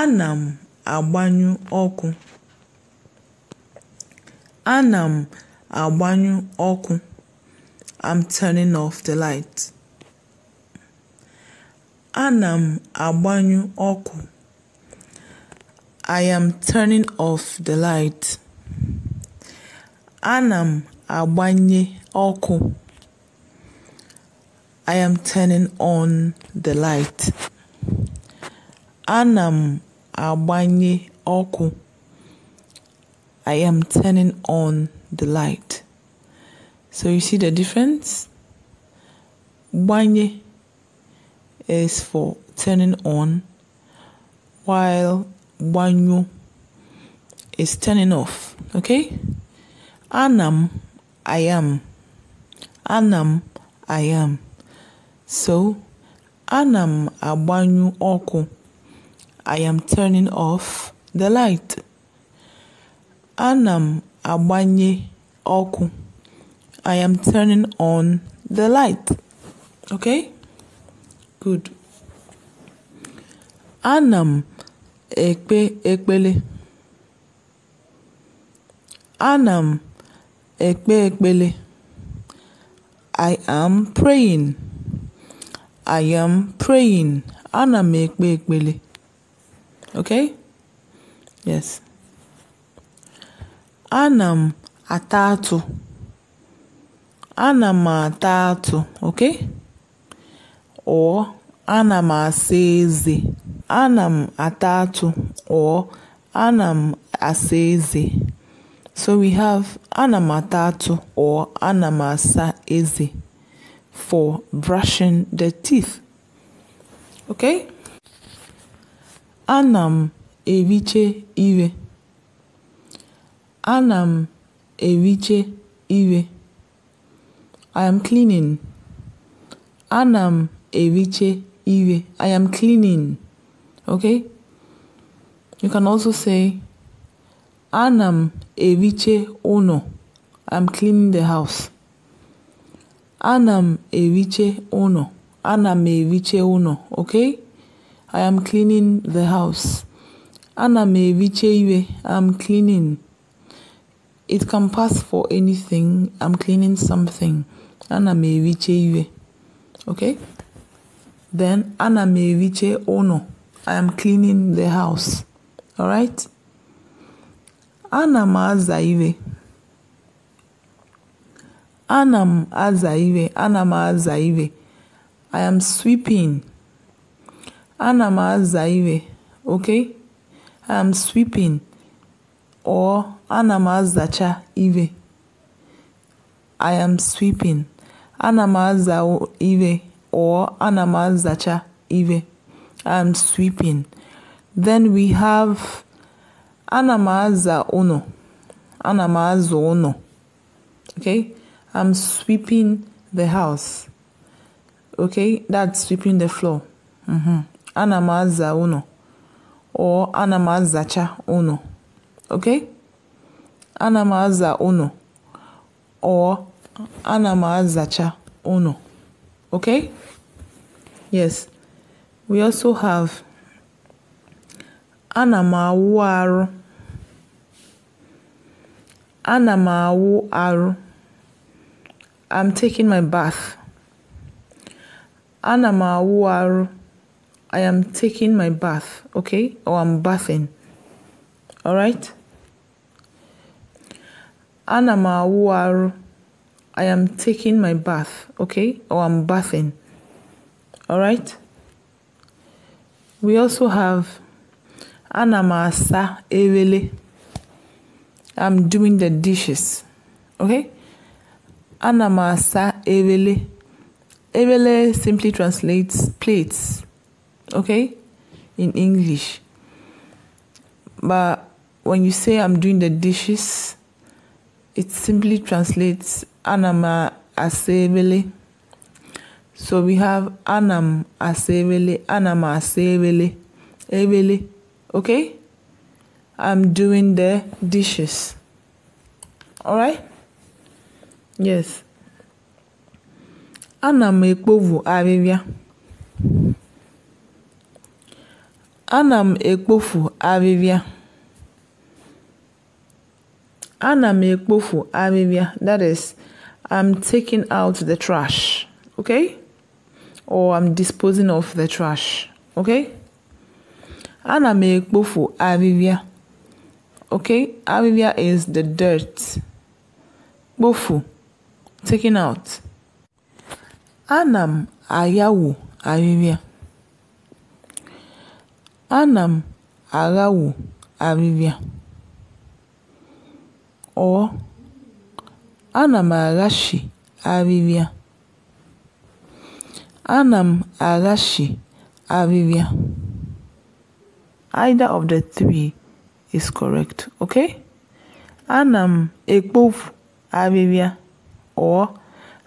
Ana m agbanyụ ọkụ Ana m agbanyụ ọkụ (I'm turning off the light) Ana m agbanyụ ọkụ (I am turning off the light) Ana m agbanye ọkụ (I am turning on the light) Ana m agbanye ọkụ I am turning on the light. So you see the difference? Banye is for turning on, while banyu is turning off. Okay? Anam, I am. Anam, I am. So, anam abanyu oku. I am turning off the light. Anam m agbanye ọkụ. I am turning on the light. Okay? Good. Anam ekpe ekpele. Anam ekpe ekpele. I am praying. I am praying. Anam ekpe ekpele okay yes Anam atatu. Anam atatu. okay or anam m Anam atatu or anam m so we have anam atatu or anam m for brushing the teeth okay Ana m eriche iwe. I am cleaning. Ana m eriche ire. I am cleaning. Okay? You can also say Ana m eriche ụnọ. I'm cleaning the house. Ana m eriche ụnọ. Ana m eriche ụnọ. Okay? I am cleaning the house. Ana me iwe. I'm cleaning. It can pass for anything. I'm cleaning something. Ana me iwe. Okay? Then ana me eviche ono. I am cleaning the house. All right? Ana m aza iwe. Ana m aza Ana m aza I am sweeping. Ana m aza iwe, okay? I'm sweeping or ana m azacha iwe. I am sweeping. Ana m aza iwe or ana m azacha iwe. I'm sweeping. Then we have ana m aza uno. Ana m aza uno. Okay? I'm sweeping the house. Okay? That's sweeping the floor. mm ana m aza ụnọ or ana m azacha ụnọ okay ana m aza ụnọ or ana m azacha ụnọ okay yes we also have ana m awụ arụ ana m awụ arụ I'm taking my bath ana m awụ arụ I am taking my bath, okay? Or I'm bathing. All right? Ana m I am taking my bath, okay? Or I'm bathing. All right? We also have ana sa asa ewele. I'm doing the dishes. Okay? Ana sa asa ewele. Ewele simply translates plates okay, in English. But when you say I'm doing the dishes, it simply translates anama asebele. So we have anam asebele, anama asebele, ebele, okay? I'm doing the dishes. All right? Yes. Anam ekpovu ana m ekpofu ahịhịa ana m ekpofu ahịhịa that is i'm taking out the trash okay or i'm disposing of the trash okay ana m ekpofu ahịhịa okay ahịhịa is the dirt kpofu taking out ana m ayawu ahịhịa ana m avivia arịrịa, or ana m avivia arịrịa, ana m aghachi arịrịa. Either of the three is correct, okay? Ana m ekpofu arịrịa or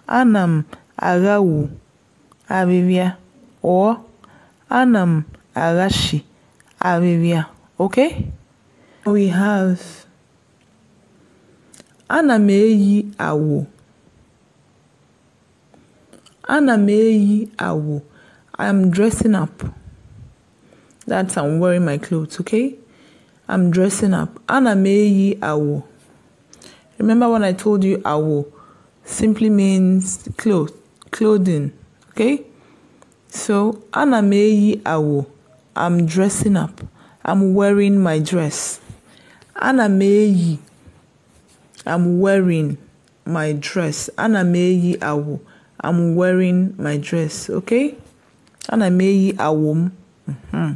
ana m avivia arịrịa or ana m arịrịa okay? we have ana meyi awo. awụ ana meyi awo. awụ i'm dressing up that's i'm wearing my clothes okay i'm dressing up ana meyi awo. awụ remember when i told you awụ simply means clothes, clothing okay so ana meyi awo. awụ I'm dressing up. I'm wearing my dress. Ana m I'm wearing my dress. Ana m eyi I'm wearing my dress. Okay? Ana m eyi Mm-hmm.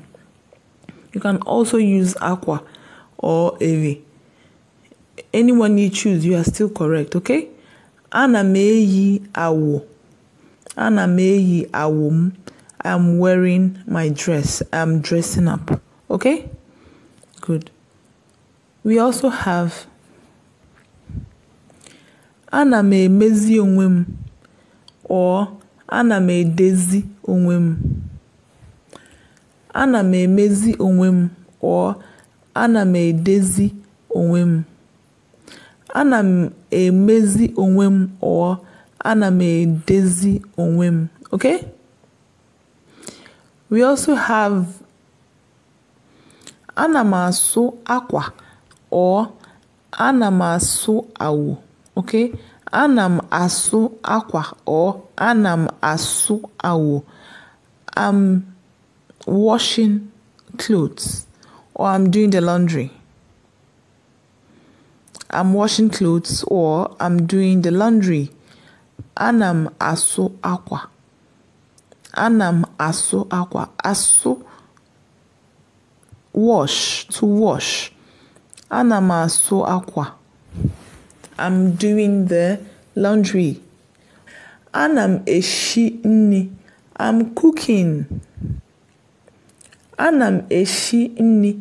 You can also use aqua or ewe. Anyone you choose, you are still correct. Okay? Ana m eyi awo. Ana m eyi I'm wearing my dress. I'm dressing up. Okay? Good. We also have Anna me emezi onwe or Anna me Daisy onwe Anna me m emezi or Anna me Daisy onwe Anna me m emezi or Anna me Daisy onwe Okay? We also have anamasu aqua or anamasu awu. Okay, anam asu aqua or anam asu awu. I'm washing clothes or I'm doing the laundry. I'm washing clothes or I'm doing the laundry. Anam asu aqua. Anam asụ akwa asụ wash to wash ana m asụ akwa I'm doing the laundry ana m eshi nri I'm cooking ana m eshi nri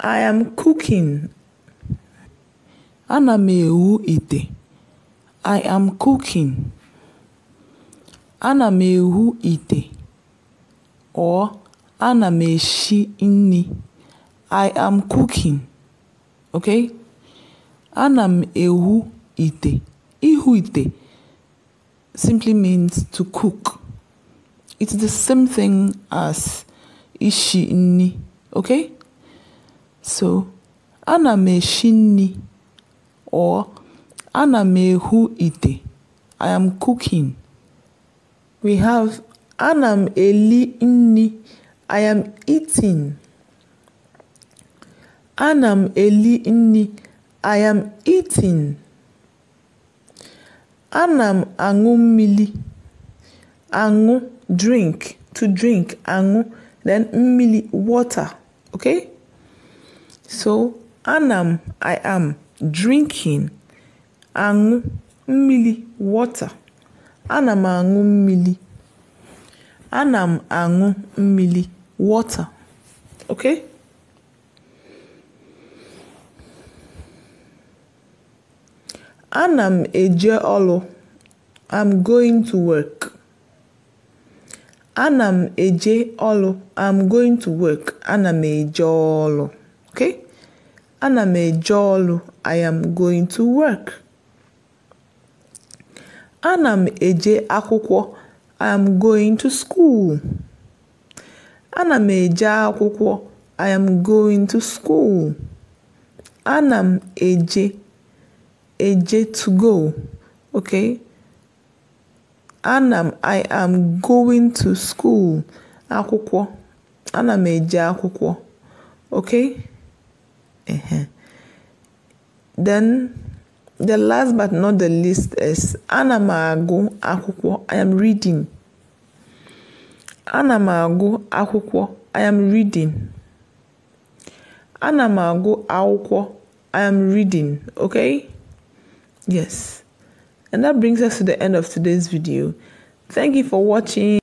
I am cooking ana m ewu ite I am cooking ana m ewu ite or ana m esi I am cooking. Okay? Ana m ehu ite. Ihu ite simply means to cook. It's the same thing as ishi ini. Okay? So, ana m esi or ana m ite. I am cooking. We have Ana m eli nri (I am eating), Ana m eli nri (I am eating), Ana m aṅụ mmiri (aṅụ drink, to drink, aṅụ then mmiri water). So ana m (I am) drinking (aṅụ) mmiri water. Ana m aṅụ mmiri. ana m aṅụ mmiri wọta ok? ana m eje ọlụ i'm going to work ana m eje ọlụ i'm going to work ana m eje ọlụ, Ok? ana m eje ọlụ i am going to work ana m eje akwụkwọ I am going to school. Ana m eje akwụkwọ. I am going to school. Ana m eje. Eje to go. Okay? Ana m I am going to school. Akwụkwọ. Ana m eje akwụkwọ. Okay? Uh -huh. Then The last but not the least is Ana m I am reading. Ana m I am reading. Ana m I am reading. Okay? Yes. And that brings us to the end of today's video. Thank you for watching.